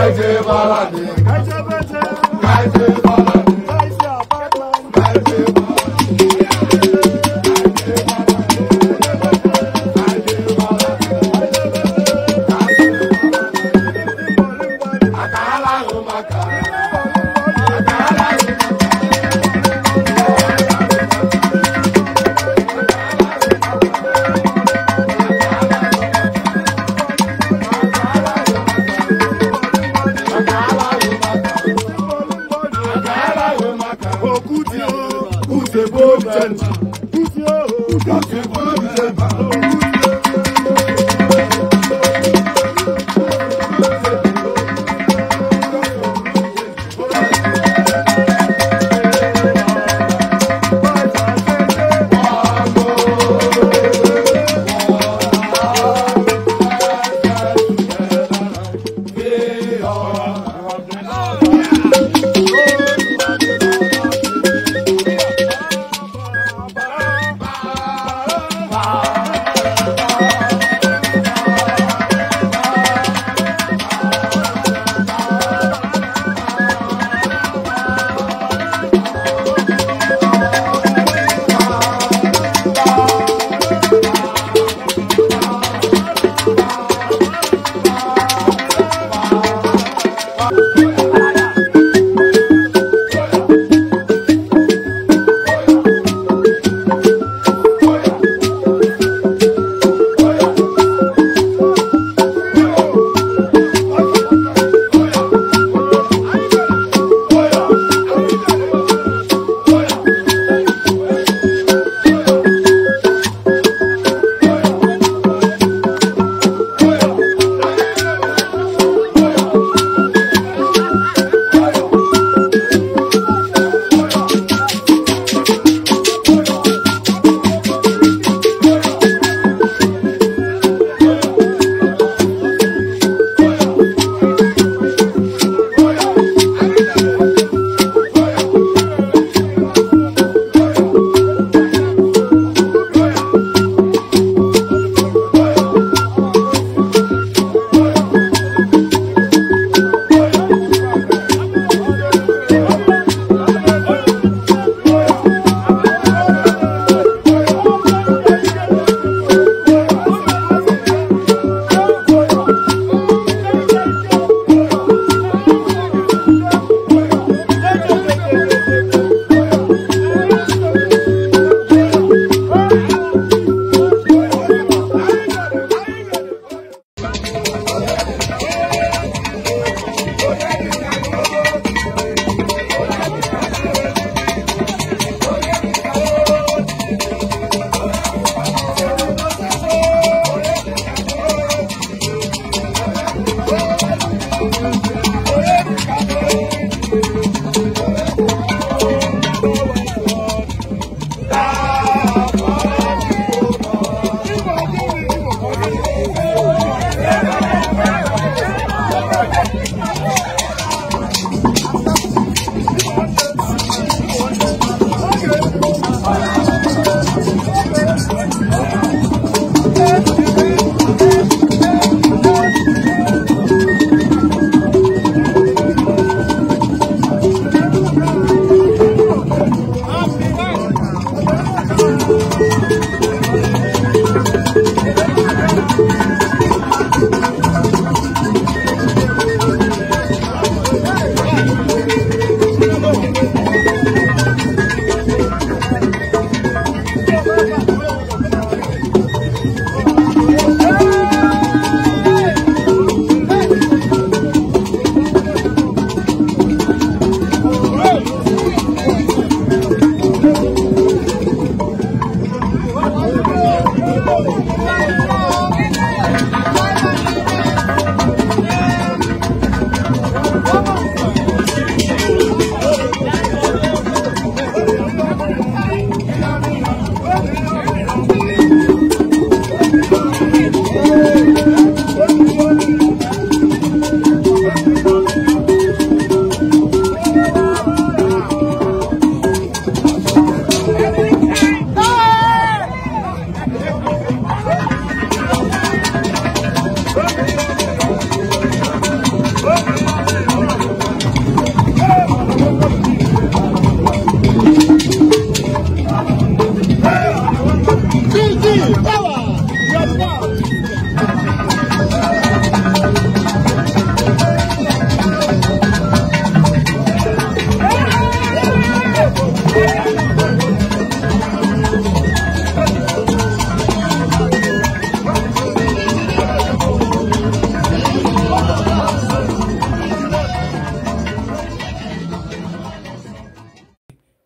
Aje balade